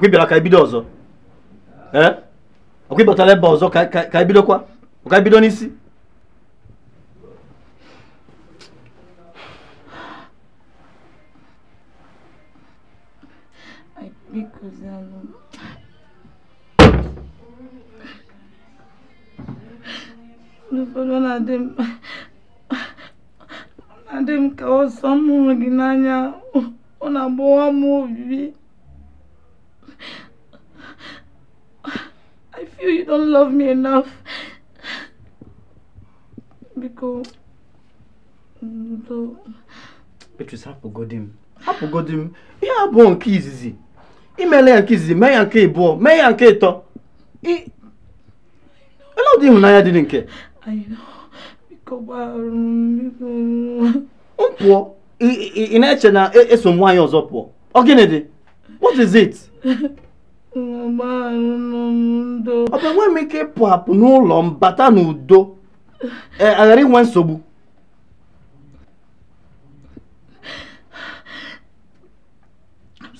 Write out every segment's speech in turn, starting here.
okwibyala kaibido ọzọ ee ọkwibọtala ebe ọzọ caibido qua. O caibido n'isi n'ụfọdụ na-adị m na-adị m ka ọsọ m hụrụ gị n'anya ọ na-agbawa m obi don't love me enough. Biko. Ndo. Mm, Beatrice, hapụgodi m. Hapụgodi m. Ihe abụọ nke izizi. Imela ya nke izizi, mee ya nke ịbụọ, mee ya nke ịtọ. I... Ele ụdị ịhụnanya dị nke? Biko gbarụ m. Pụọ. Ị na-eche na e, eso nwaanyị ọzọ pụọ. Ọ gịnị dị? What is it? ọ bụ enweghị m ike ịpụ apụ n'ụlọ m bata n'udo e, aghara inwe nsogbu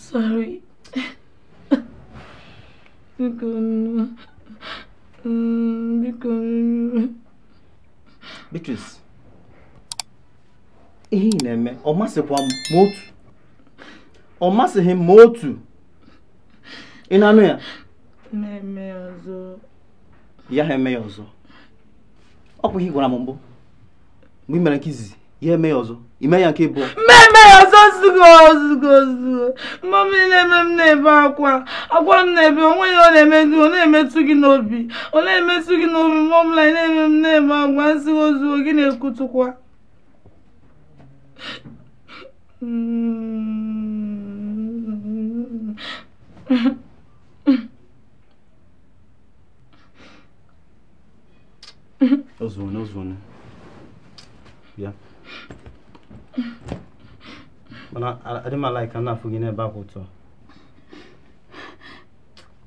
sorry. Biko nnu. Biko nnu. Beatrice, ihe ị na-eme ọ masịkwa m otu ọ masịghị m otu ị na-anụ ya na-eme ya ọzọ ya ha eme ya ọzọ ọ bụ ihe gwara m mbụ mgbe ị mere nke izizi ya eme ya ọzọ ime ya nke ịbụọ mmemme ya ọzọ zugo zugo zugo mmọm na-eme m na-ebe akwa akwa m na-ebe onwe ya ọ na-emedu ọ na-emetụ gị n'obi ọ na-emetụ gị n'obi mmọm na na-eme m na-ebe agwa nzigo zugo gị na-ekwutụkwa mm Ozone, ozone. Bịa. Mana adị m ala na-afụ n'ebe ahụ otu a.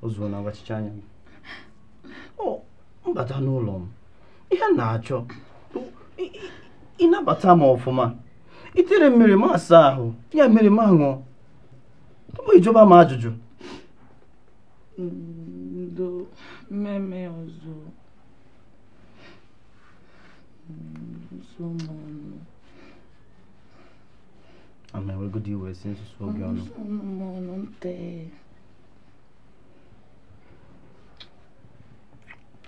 Ozone agbachicha anya m. Ọ mbata n'ụlọ m. Ihe m na-achọ. Ịnabata m ọfụma. Itere mmiri m asa ahụ. Ya mmiri m aṅụọ. Tupu ijoba m ajụjụ. Ndo mm, mmemme ọzọ. sọmọ ni. àmọ́ ẹ̀rọ gidi ìwẹ̀ sí ń sọ ọ́gẹ́ ọ̀nà. ọmọ ọ̀nà ń tẹ.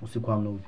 ó sì kó àná òbí.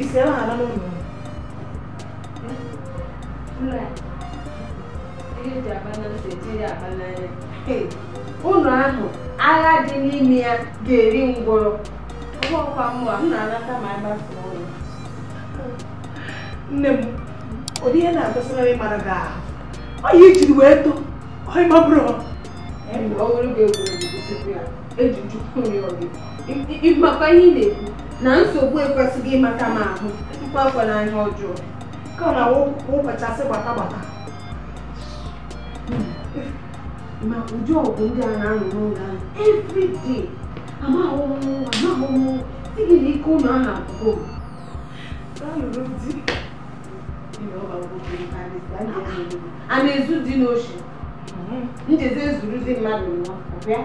ụnụ Ụlọ ahụ, agha dị n'ime ya ga-eri ngwọrọ. Ụgwọ ọkwa na Nne m, ụdị ihe na-agosịrị ịmara gị ahụ. Ọ ya ijiri wee too, ọ ọ. ya, Ịmakwa ihe ị na-ekwu. na nsogbu ekwesịghị ịmata m ahụ mkpakwana ihe ọjọọ ka na wụkachasị gbata gbata hmm. ma ụdị ọgwụ ndị a na-anọ n'ụlọ ahụ everyday amahụmahụmụ sigi na ike ụlọ ahụ abụgo a na-ezu dị n'oshi njezi dị mmadụ ọ bịa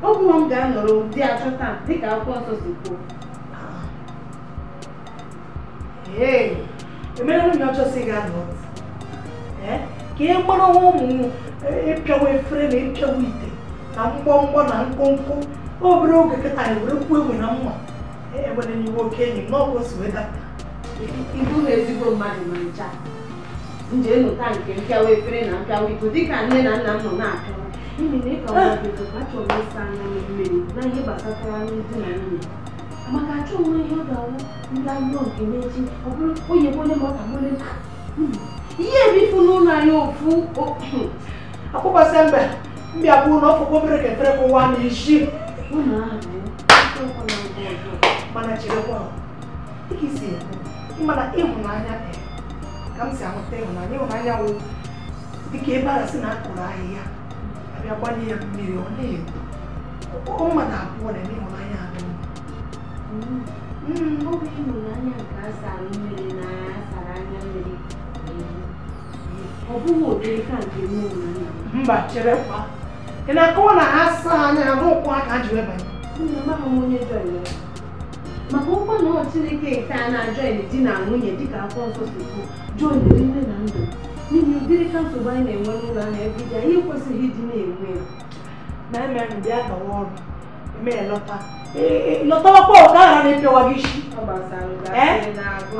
nwa ọgwụ m ga-anọrọ dị achọta dịka akwụkwọ nsọ si kwuo emerela e m ya ọchọsị gị anọ eh, ka e kpọrọ ọnwa ụmụ ịpịawa e efere na ịpịawa e ite na mgbọmgbọ na mkpụmkpụ obere oge kịta were kwuo e na mma ewere eh, n'iwe oke enyi m n'ọgwụ weda ibu na ezigbo mmadụ ma ncha nje nke mpịawa efere na mpịawa iko dịka nne na nna m nọ na na ịka nwa bịara achọrọ ịsa na ihe gbasatara ndị na nwunye maka achọ onwe ihe ọ ga-awụ ndị ahụhụ nke n'echi ọ bụrụ onye onye ma ọ ka nwere ihe ebifu n'ụlọ anyị ofu akpọkwasị mbe mbịa bụ na ọfụkwa obere ka efere kụwa na isi mana cherekwa dịka isi ekwu ịmana ịhụnanya ka m si ahụta ịhụnanya ịhụnanya wụ dịka ebe arasị na akụrụ ahịhịa abịa gbanye ya mmiri ọ na ọ ụmụ na abụọ na-eme inwe ịhụnanya nke asara mmiri na asara anya mmiri ọ bụghị ụdịrị ka nke nne ụnanya mba chere cherekwa ị na-akọwa na ha saa anya ha n'ụkwụ aka ji wee banye nna m ahụ onye jọrọ ya maka ụkwa na ọ Chineke nke a na-ajọin ajọ di na nwunye dịka akwụkwọ nsọ si kwuo jọin nne na ndụ n'ihi ụdịrị ka nsogbu anyị na-enwe n'ụlọ anyị ebe iji anyị ekwesịghị ịdị na-enwe ya na-eme bịa gawa ọrụ eme ya lọta Eh, eh, lo tọwọ́ pọ̀ káàrà ní pẹ̀wà eh? gíṣì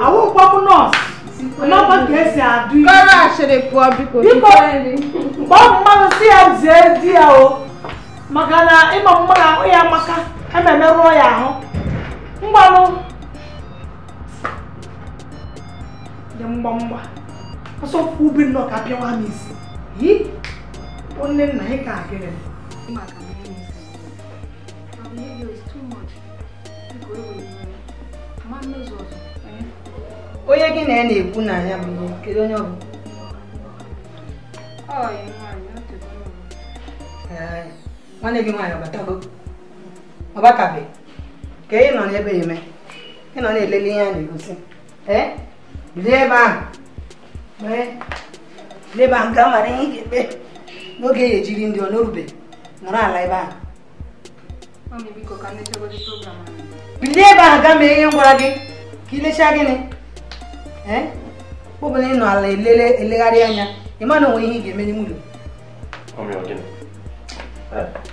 àwọn pọ́pù nọ́ọ̀sì lọ́pọ̀ gẹ̀ẹ́sì àdú kọ́rọ̀ àṣẹlẹ̀ pọ̀ bí kò ní kọ́rẹ́ni pọ́pù mmanụ si ya zie di ya o maka e ịma mma na ahụ ya amaka ememe rụọ ya ahụ mgbanụ dị mgbamgba ọsọ ubi nnọọ ka pịawa m isi yi onye nna ị ka agịrị m onye gị na ya na-ekwu na ya bụ kedu onye ọ bụ nwanne gị nwaanyị ọbatago ọbatabeghị ka ị nọ n'ebe eme ị nọ na-elele ihe a na-egosi ee bilie ebe ahụ ee bilie ebe ahụ ga mara ihe ị ga-ekpe n'oge e ya ejiri ndị ọ n'orube nọrọ ala ebe ahụ bilie ebe ahụ gaa mee ihe m gwara gị ka ilechaa gịnị ọ bụla ị nọ ala elele elegharị anya ị ma onwe ihe ị ga-eme n'ime ụlọ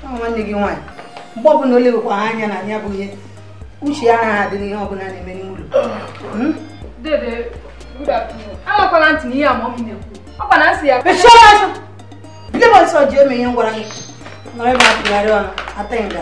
nwanne gị nwaanyị mgbe ọbụla o lewekwa ha anya na ya bụ ihe uche ya anaghị adị n'ihe ọbụla na-eme n'ime ụlọ bilie ọsọ ji eme ihe ngwara gị nọrọ ebe a tụgharị ọnụ ata nga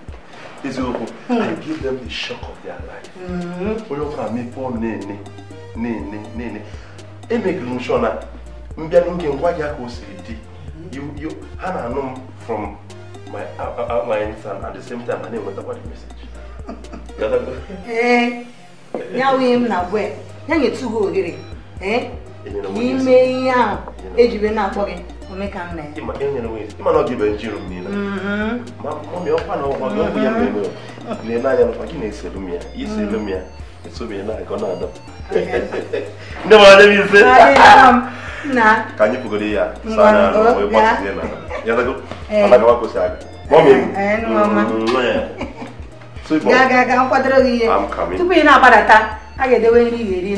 eziokwu hmm. I give them the shock of their life hmm. onye ọbụla mepe ọnụ na-ene na-ene na-ene emegiri m shọ na mbịa n'oge ngwa gị ka o siri dị hmm. ha na-anụ m from my uh, uh, uh, my son at the same time and enwetakwa the message eh, ya wee m na gwe ya nyetugo ohere eh? e ihe ahụ ejibe na-akpọ gị omekanna ya ịma na ọ dịbe njiri mmiri mm-hmm. ma mọmi ọkwa na ọgwa gị ọgwụ ya ele mm-hmm. anya n'ụkwa gị na-eselu m ya iselu mm-hmm. m ya esobe ya na-aga na-ada ndị mara ndị na onwe gbasizie na ya dago mana gawa kwụsị aga mọmi m ga ga ga nkwadoro gị ihe tupu ị na-agbadata a ga-edewe nri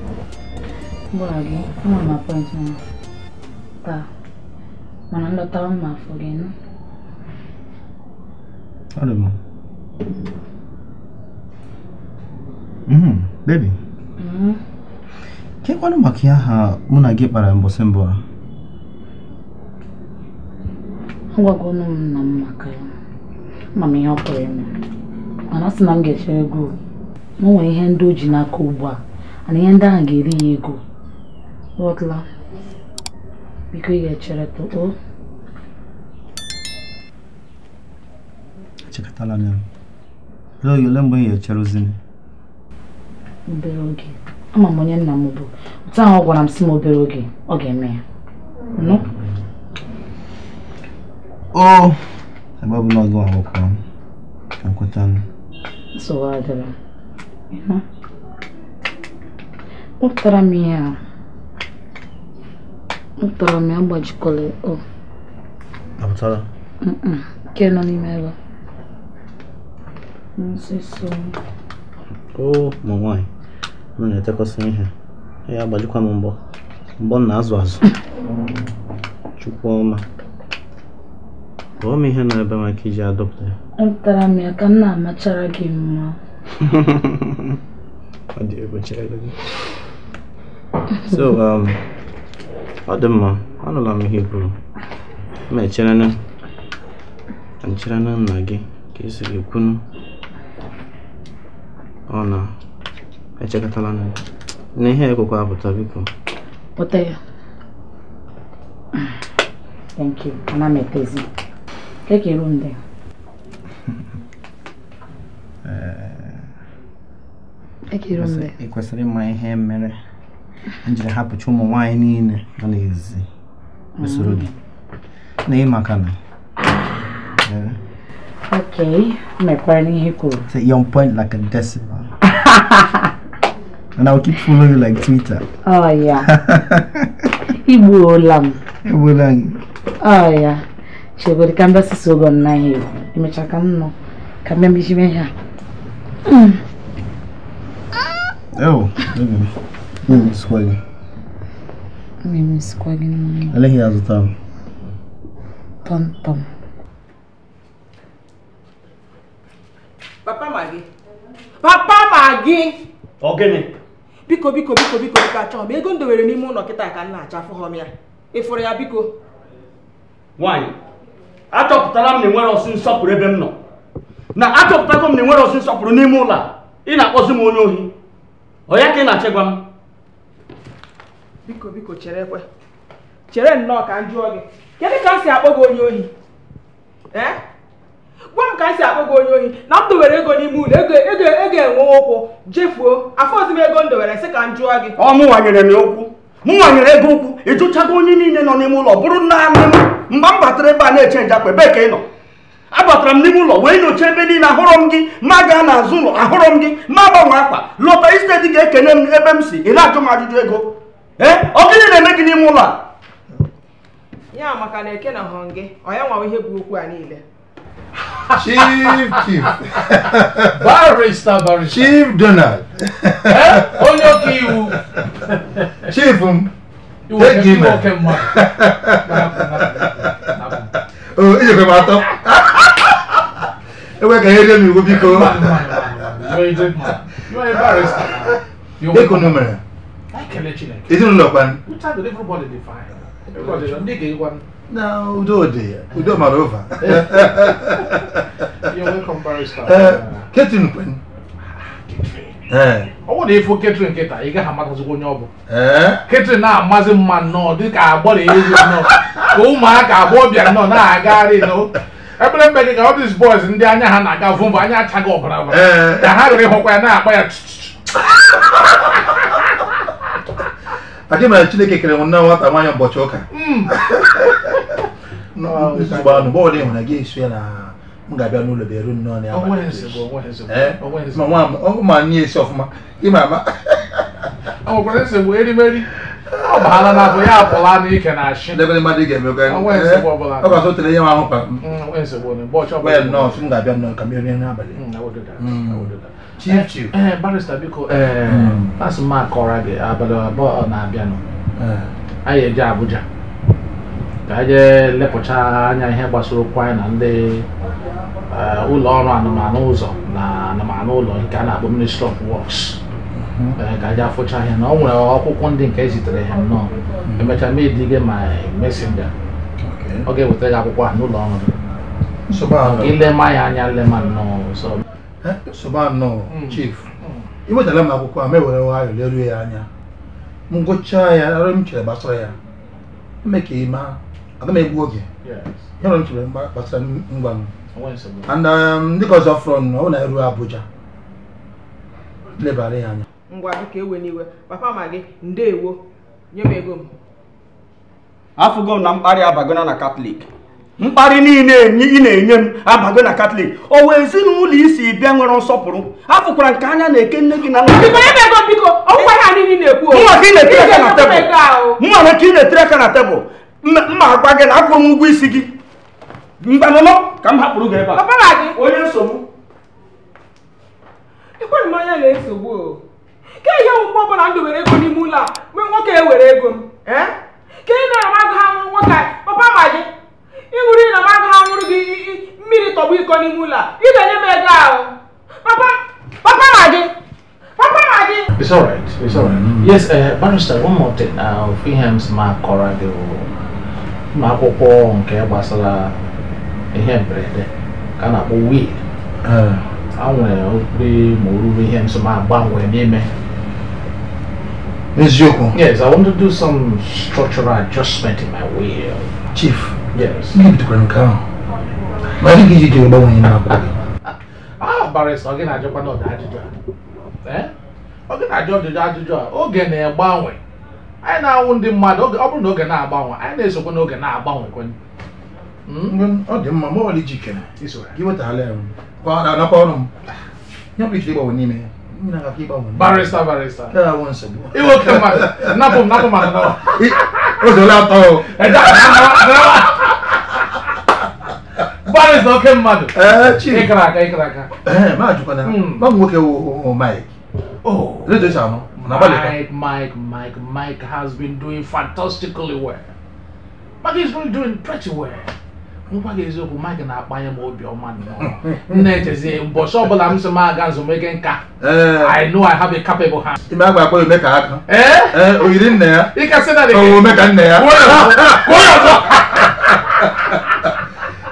mgbọghagị nwa m apọịntị m taa mana nlọtawa m afọ gị nụ Ọdụm. Bebi. Chekwanụ maka ya ha mụ na gị kpara mbọsị mbụ a. Agwagonu m nna maka ya. Ama m ihe Mana na ga-echere nwere ihe ndị o ji n'aka ugbu a. Mana ihe ndị ahụ ga-eri ya ego. Водла. Бігає черету. О. Чекатала не. Lo yo lembo ye cherozini. Obere oge. Ama m onye nna m bụ. Otu ahụ ọ gwara m si m obere oge ọ ga-eme ya. Nụ? O! Ebe ọ bụla ọgụ ahụkwa m. Ka m mkpọrọ m ya apụtala. nke nọ n'ime ebe o ma nwaanyị m na-etekọsị ihe ya agbajikwa m mbọ mbọ m na-azụ azụ chukwu ọma kpọọ m ihe na-ebe maka iji adọpụta ya atara m ya ka m na-amachara gị mma ọ dị egbochara gị so um, ọ dị mma anụla m ihe i kwuru ma na nna gị ka esiri kwunu ọ na-echekọtala na na ihe ekwekwa apụta biko pụta ya thank ịma ihe mere m jiri hapụcha ụmụ nwaanyị niile nọ n'ezi usoro gị na ị maka na Okay, mekwara n'ihe kwuru. like a keep following like Twitter. Oh yeah. Oh yeah. Chegodi ka mbasi sogo na hiyo. Imecha ka mno. Ka mbembishi Oh, Anaghị azụta m. Pọmpọm. Papa ma gị. Papa ma gị. Ọ gịnị? Biko biko biko biko biko achọghị m ego m n'ime ụlọ kịta ka nna na-acha afụghọm ya. Ịfụrụ ya biko. Nwaanyị, achọpụtara m na enwere ọsụ nsọpụrụ ebe m nọ. Na achọpụtago m na enwere ọsụ nsọpụrụ n'ime ụlọ a. Ị na-akpọzi m onye ohi. Ọ ya ka ị na-achịgwa m? biko biko chere kwe chere nnọọ ka m jụọ gị kedu ka m si akpọ gị onye ohi gwa m ka m si akpọ gị onye ohi na m dowere ego n'ime ụlọ ego ego ego enwe ụkwụ jefuo afọ ozi m ego m dowere sị ka m jụọ gị ọ mụwanyere m ụkwụ m nwanyere ego ụkwụ ịjụchago onye niile nọ n'ime ụlọ bụrụ naanị m mgbe m batara ebe a na-eche njakpa ebe ka ị nọ abatara m n'ime ụlọ wee nyochaa ebe niile ahụrụ m gị ma gaa n'azụ ụlọ ahụrọ m gị ma gbanwe akpa lọta isteti ga-ekene m ebe m si ị na-ajụ m ajụjụ ego ọkịrị eh, na-eme gị n'ime ụlọ a ya maka na eke na hụrụ gị onye nwawa ihe bụ okwu a niile chief chief barista barista chief donald eh, onye ọka iwu chief m eji m o ijekwe m atọ ewe ka ihe rie m iwu biko dịka unu mere ezinụlọ uh, eh. kwa na udo dị udo mara ụva ketrin kwen ọ ifo ị gaghị onye ọ bụ eh? na mma nnọọ nnọọ ka ụmụaka bịa nnọọ na-agagharị ebere mgbe gị ka ọ dịs bọyz ndị anya ha na-aga vụmba anya achaghị ọbara eh. ka ha rere ịhụkwa ya na-akpa ya aka mere chineke kere nwanne nwata nwaanyị ụbọchị ụka anụ bọọlụ ịhụ na gị esu ya na m ga-abịa n'ụlọ bịa eru nnọọ n'abalị ma nye esi ọfụma ịma ama ọgwụkwara nsogbu erimeri ọ baala na abụ ya apụla na ike na ashị debe mmadụ ị ga-emekwa ọ ga-asọ tere ihe ahụ kpa m nnọọ m ga-abịa nnọọ ka m rie n'abalị chief eh, chief ee eh, barista biko ee asị m akọrọ gị abalị abụọ na-abịanụ eh. anyị eje Abuja ka je jee lepụcha anya ihe gbasara okwu anyị na ndị ụlọ ọrụ anụmanụ ụzọ na anụmanụ ụlọ nke a na-akpọ ministry of works hmm. ka anyị afụcha ihe na ọ nwere akwụkwọ ndị nke ezitere ha nnọọ hmm. emechaa ma edi ma mesinga ọ ga-ewetara gị akwụkwọ a n'ụlọ ọrụ gị ilema ya anya lema nnọọ Eh? soba nnọọ hmm. chief hmm. iwetara m akwụkwọ a ma ewere nwayọọ leruo ya anya m gụchaa ya arụ m chere gbasara ya eme ka ị maa aga m egbu oge ihe m chere gbasara ngwa m and dịka ọzọ fọrọ nọ ọ na eru Abuja lebara ya anya ngwa dịka ewe n'iwe papa ma gị ndeewo nye m ego m afụgo m na mkparị abagona na katọlik mkparị niile ị na-enye m abago na katọlik o wee ezinụlọ isi bịa nwere nsọpụrụ afụkwara nke anya na-eke nne gị na mma na ka ị na-etere aka na tebụl mma agwa gị na akwụrụ m isi gị mgbanụnọ ka m hapụrụ gị ebe a onye nsogbu na-esogbu ka ihe ọbụla ndụ were ego n'ime ụlọ a nwoke e ego m ka ị na ha nwoke papa papa papa it's all right it's all right mm. yes uh, barrister one more thing ofu ihe m si ma akọrọ gị ụmụ akwụkwọ nke gbasara ihe mberede ka a na-akpọ wil a nwere obere ma oruru ihe nso ma agbanwee n'ime Yes, I want to do some structural adjustment in my will. Chief. Yes. it bidokwara Grand ahụ. ma dị ka iji jiri gbanwee na-abụ agbara ọ gị na-ajụkwa n'ọdị ajụjụ a ọ gị na-ajụ ọdịdị ajụjụ a oge na-agbanwe anyị na-anwụ ndị mmadụ ọ bụrụ na oge na-agbanwe anyị na-esokwa n'oge na-agbanwe kwenye hmm? ọ dị mma ma gị ya mkparịsị oke mmadụ eh, ịkara aka ịkara aka eh, ma jụkwana ma hmm. nwoke Mike oh. redio shanụ Mike, Mike, Mike, Mike has been doing fantastically well. Mike been doing pretty well. gị eziokwu na-akpanye m obiọma m na-echezi ụbọchị ọbụla m si m aga nzụmike nka eh. I know I have a capable hand. ime agba aka oyiri ya na omeka nna ya